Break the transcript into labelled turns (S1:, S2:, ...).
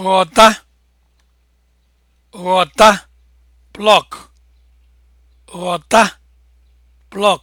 S1: ghọta ghọta plọk